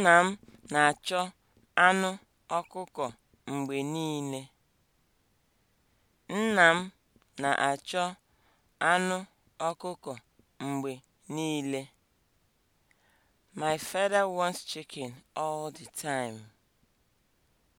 Nna m na-achọ anụ ọkụkọ mgbe niile. Nna m na-achọ My father wants chicken all the time.